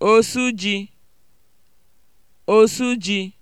osu ji osu ji